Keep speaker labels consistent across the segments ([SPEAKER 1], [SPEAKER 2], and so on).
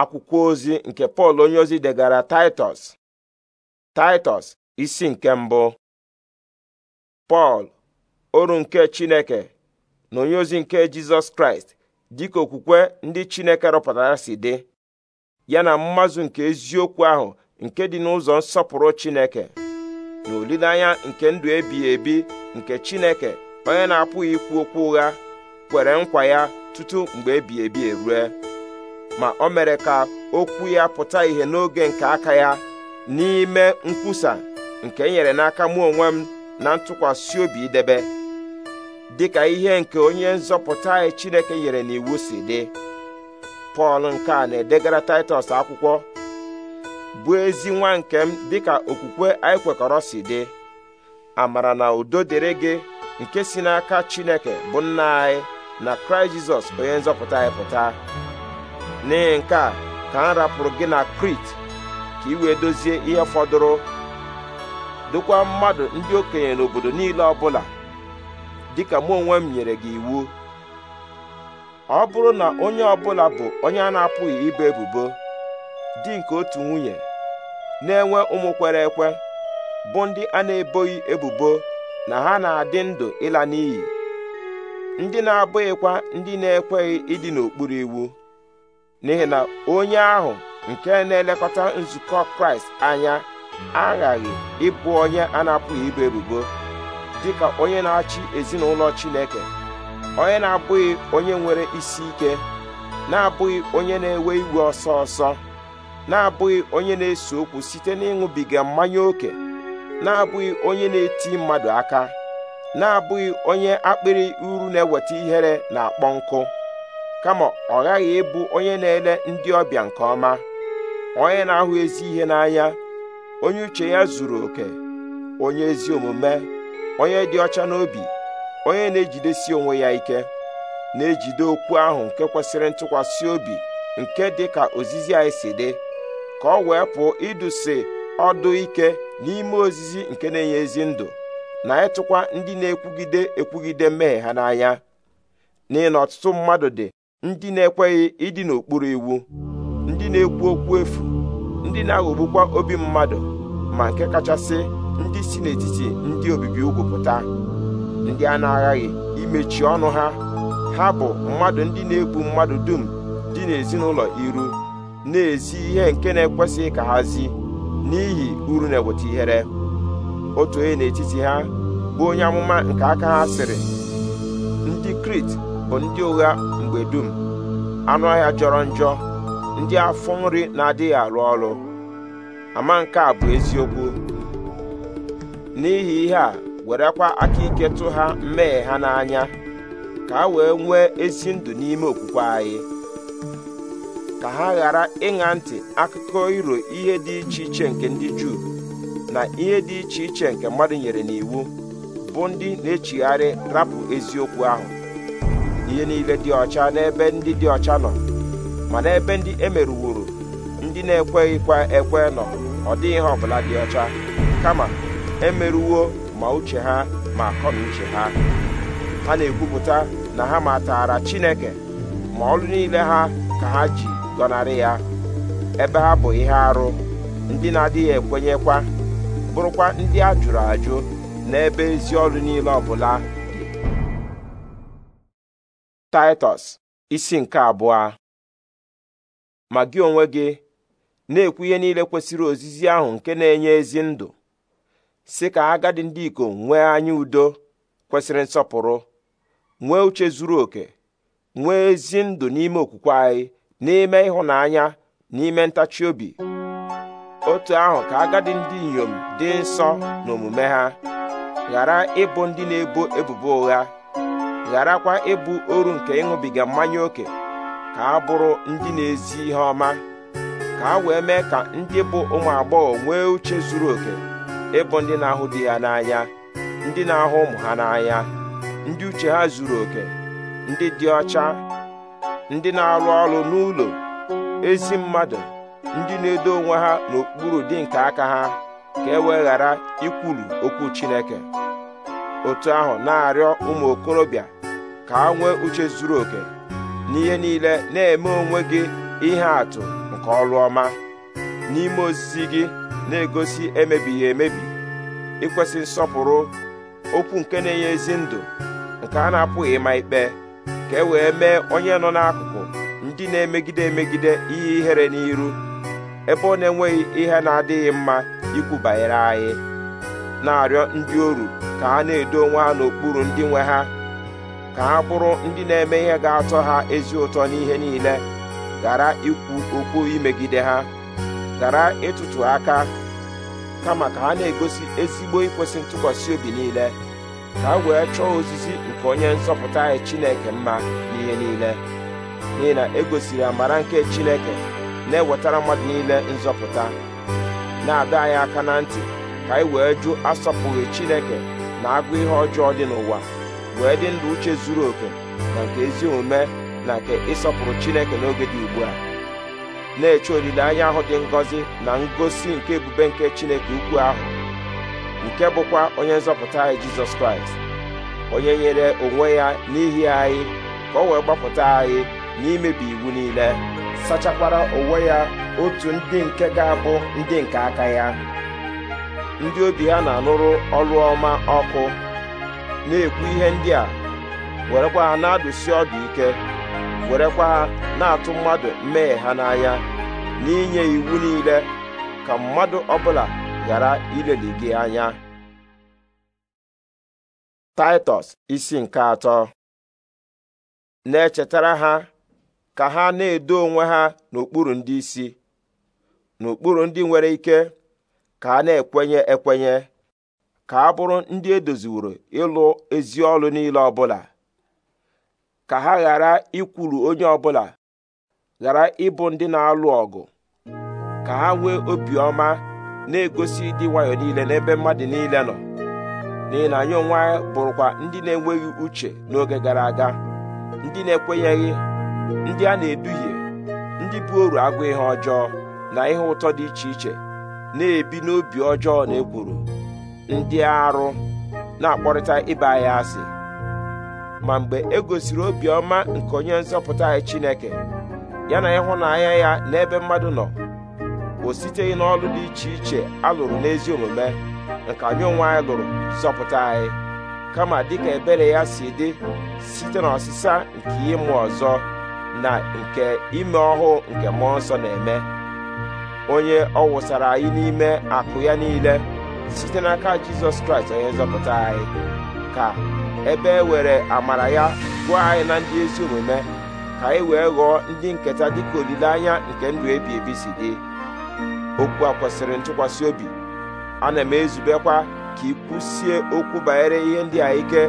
[SPEAKER 1] akwụkwọ ozi nke pọl onyeozi degara taịtọs taịtọs isi nke mbụ pọl oru nke chineke na onyeozi nke jizọs kraịst dịka okwukwe ndị chineke rụpụtara si dị ya na mmazụ nke eziokwu ahụ nke dị n'ụzọ nsọpụrụ chineke na olileanya nke ndụ ebighị ebi nke chineke onye na-apụghị ikwu okwu ụgha kwere nkwa ya tutu mgbe ebighị ebi erue ma o mere ka okwu ya pụta ìhè n'oge nke aka ya n'ime nkwusa nke e nyere n'aka mụ onwe m na ntụkwasị obi idebe dịka ihe nke onye nzọpụta anyị e Chineke nyere n'iwu si dị Pọl nke a na-edegara Taịtọs akwụkwọ bụ ezi nwa nke m dịka okwukwe anyị kwekọrọ si dị amara na udo dịrị gị nke si n'aka Chineke bụ nna anyị na Kraịst Jizọs onye nzọpụta anyị pụta n'ihi nke a ka m rapụrụ gị na krit ka ị wee dozie ihe fọdụrụ dokwa mmadụ ndị okenye n'obodo niile ọbụla dịka mụ onwe m nyere gị iwu ọ bụrụ na onye ọbụla bụ onye a na-apụghị ibe ebubo dị nke otu nwunye na-enwe ụmụ kwere ekwe bụ ndị a na-eboghị ebubo na ha na-adị ndụ ịla n'iyi ndị na-abụghịkwa ndị na-ekweghị ịdị n'okpuru iwu n'ihi na onye ahụ nke na-elekọta nzukọ kraịst anya aghaghị ịbụ onye a na-apụghị ibu ebubo dịka onye na-achị ezinụlọ chineke onye na-abụghị onye nwere isi ike na-abụghị onye na-ewe iwe ọsọ ọsọ na-abụghị onye na-ese okwu site n'ịṅụbiga mmanya ókè na-abụghị onye na-eti mmadụ aka na-abụghị onye akpịrị uru na-eweta ihere na akpọ nkụ kama ọ ghaghị ịbụ onye na-ele ndị ọbịa nke ọma onye na-ahụ ezi ihe n'anya onye uche ya zuru oke onye ezi omume onye dị ọcha n'obi onye na-ejidesi onwe ya ike na-ejide okwu ahụ nke kwesịrị ntụkwasị obi nke dị ka ozizi anyị si dị ka ọ wee pụọ idusi ọdụ ike n'ime ozizi nke na-enye ezi ndụ na ịtụkwa ndị na-ekwugide ekwugide mmehie ha n'anya n'ihi na ọtụtụ mmadụ dị ndị na-ekweghị ịdị n'okpuru iwu ndị na-ekwu okwu efu ndị na-aghọgbukwa obi mmadụ ma nke kachasị ndị si n'etiti ndị obibi ugwu pụta ndị a na-aghaghị imechi ọnụ ha ha bụ mmadụ ndị na-egbu mmadụ dum dị n'ezinụlọ iru na-ezi ihe nke na-ekwesịghị ka ha zi n'ihi uru na-eweta ihere otu onye n'etiti ha bụ onye amụma nke aka ha sịrị ndị Krit bụ ndị ụgha mgbe dum anụ ọhịa jọrọ njọ ndị afọ nri na-adịghị arụ ọrụ ama nke a bụ eziokwu n'ihi ihe a werekwa aka ike tụ ha mmehie ha n'anya ka ha wee nwee ezi ndụ n'ime okwukwe anyị ka ha ghara ịṅa ntị akụkọ iro ihe dị iche iche nke ndị Juu na ihe dị iche iche nke mmadụ nyere n'iwu bụ ndị na-echigharị rapụ eziokwu ahụ ihe niile dị ọcha n'ebe ndị dị ọcha nọ mana ebe ndị emerụworo ndị na-ekweghịkwa ekwe nọ ọ dịghị ihe ọbụla dị ọcha kama emerụwo ma uche ha ma akọ uche ha ha na-ekwupụta na ha matara Chineke ma ọrụ niile ha ka ha ji gọnarị ya ebe ha bụ ihe arụ ndị na-adịghị ekwenyekwa bụrụkwa ndị a jụrụ ajụ n'ebe ezi ọrụ niile ọbụla taịtọs isi nke abụọ ma gị onwe gị na-ekwu ihe niile kwesịrị ozizi ahụ nke na-enye ezi ndụ si ka agadi ndị ikom nwee anya udo kwesịrị nsọpụrụ nwee uche zuru oke nwee ezi ndụ n'ime okwukwe anyị n'ime ịhụnanya n'ime ntachi obi otu ahụ ka agadi ndị inyom dị nsọ n'omume ha ghara ịbụ ndị na-ebo ebubo ụgha gharakwa ịbụ oru nke ịṅụbiga mmanya ókè ka a bụrụ ndị na-ezi ihe ọma ka a wee mee ka ndị bụ ụmụ agbọghọ nwee uche zuru oke ịbụ ndị na-ahụ di ya n'anya ndị na-ahụ ụmụ ha n'anya ndị uche ha zuru oke ndị dị ọcha ndị na-arụ ọrụ n'ụlọ ezi mmadụ ndị na-edo onwe ha n'okpuru dị nke aka ha ka e wee ghara ikwulu okwu Chineke otu ahụ na-arịọ ụmụ okorobịa ka ha nwee uche zuru oke n'ihe niile na-eme onwe gị ihe atụ nke ọrụ ọma n'ime ozizi gị na-egosi emebighị emebi ịkwesị nsọpụrụ okwu nke na-enye ezi ndụ nke a na-apụghị ịma ikpe ka e wee mee onye nọ n'akụkụ ndị na-emegide emegide ihe ihere n'iru ebe ọ na-enweghị ihe na-adịghị mma ikwu banyere anyị na-arịọ ndị oru ka ha na-edo onwe ha n'okpuru ndị nwe ha ka ha bụrụ ndị na-eme ihe ga-atọ ha ezi ụtọ n'ihe niile gara ikwu okwu imegide ha gara ịtụtụ aka kama ka ha na-egosi ezigbo ikwesị ntụkwasị obi niile ka ha wee chọọ ozizi nke onye nzọpụta anyị Chineke mma n'ihe niile n'ihi na egosiri amara nke Chineke na-ewetara mmadụ niile nzọpụta na-adọ anyị aka na ntị ka anyị wee jụ asọpụghị Chineke na agụ ihe ọjọọ dị n'ụwa wee dị ndụ uche zuru oke na nke ezi omume na nke ịsọpụrụ Chineke n'oge dị ugbu a na-eche olileanya ahụ dị ngọzi na ngosi nke ebube nke Chineke ukwu ahụ nke bụkwa onye nzọpụta anyị Jizọs Kraịst onye nyere onwe ya n'ihi anyị ka o wee gbapụta anyị n'imebi iwu niile sachakwara onwe ya otu ndị nke ga-abụ ndị nke aka ya ndị obi ha na-anụrụ ọrụ ọma ọkụ na-ekwu ihe ndị a werekwa ha na-adụsi ọdụ ike werekwa ha na-atụ mmadụ mmehie ha n'anya n'inye iwu niile ka mmadụ ọbụla ghara ileli gị anya taịtọs isi nke atọ na-echetara ha ka ha na-edo onwe ha n'okpuru ndị isi n'okpuru ndị nwere ike ka a na-ekwenye ekwenye ka a bụrụ ndị edoziworo ịlụ ezi ọlụ niile ọbụla ka ha ghara ikwulu onye ọbụla ghara ịbụ ndị na-alụ ọgụ ka ha nwee obiọma na-egosi ịdị nwayọọ niile n'ebe mmadụ niile nọ n'ihi na anyị onwe anyị bụrụkwa ndị na-enweghị uche n'oge gara aga ndị na-ekwenyeghị ndị a na-eduhie ndị bụ oru agụ ihe ọjọọ na ihe ụtọ dị iche iche na-ebi n'obi ọjọọ na ekworo ndị arụ na-akpọrịta ịba anyị asị ma mgbe e gosiri obiọma nke onye nzọpụta anyị Chineke ya na ịhụnanya ya n'ebe mmadụ nọ o siteghị n'ọlụ dị iche iche alụrụ n'ezi omume nke anyị onwe anyị lụrụ zọpụta anyị kama dịka ebere ya si dị site n'ọsịsa nke ịmụ ọzọ na nke ime ọhụụ nke mmụọ nsọ na-eme onye ọ wụsara anyị n'ime akụ ya niile site n'aka jizọs kraịst onye nzọpụta anyị ka ebe e were amara ya gụọ anyị na ndị ezi omume ka anyị wee ghọọ ndị nketa dịka olileanya nke ndụ ebi ebi si dị okwu a kwesịrị ntụkwasị obi ana m ezubekwa ka ikwusie okwu banyere ihe ndị a ike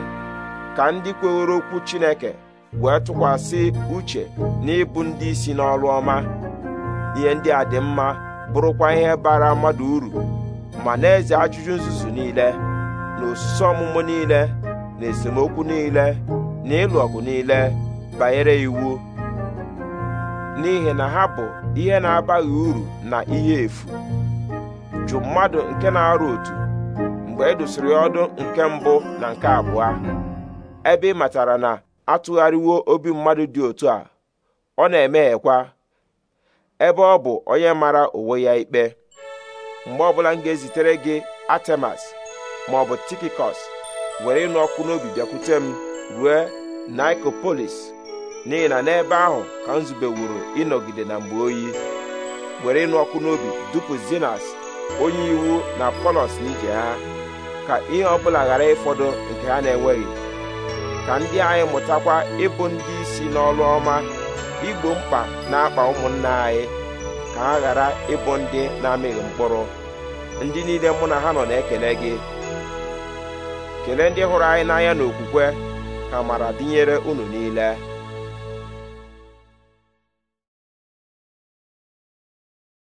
[SPEAKER 1] ka ndị kwewere okwu chineke wee tụkwasị uche n'ịbụ ndị isi n'ọrụ ọma ihe ndị a dị mma bụrụkwa ihe bara mmadụ uru ma na-eze ajụjụ nzuzu niile na osisi ọmụmụ niile na esemokwu niile na ịlụ ọgụ niile banyere iwu n'ihi na ha bụ ihe na-abaghị uru na ihe efu jụ mmadụ nke na-arụ otu mgbe e dosiri ọdụ nke mbụ na nke abụọ ebe ị matara na atụgharịwo obi mmadụ dị otu a ọ na-emeghekwa ebe ọ bụ onye mara onwe ya ikpe mgbe ọbụla m ga-ezitere gị atemas ma ọ bụ tikikos were ịnụ ọkụ n'obi bịakwute m rue nikopolis n'ihi na n'ebe ahụ ka m zubewuru ịnọgide na mgbe oyi were ịnụ ọkụ n'obi dupu zinas onye iwu na polos n'ije ha ka ihe ọbụla ghara ịfọdụ nke ha na-enweghị ka ndị anyị mụtakwa ịbụ ndị isi n'ọrụ ọma igbo mkpa na-akpa ụmụnna anyị ka ha ghara ịbụ ndị na-amịghị mkpụrụ ndị niile mụ na ha nọ na-ekele gị kelee ndị hụrụ anyị n'anya n'okwukwe ka mara dịnyere unu niile